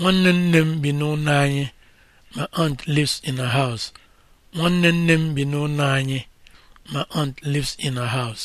nwanne nne m bi n'ụlọ anyị my aunt lives in a house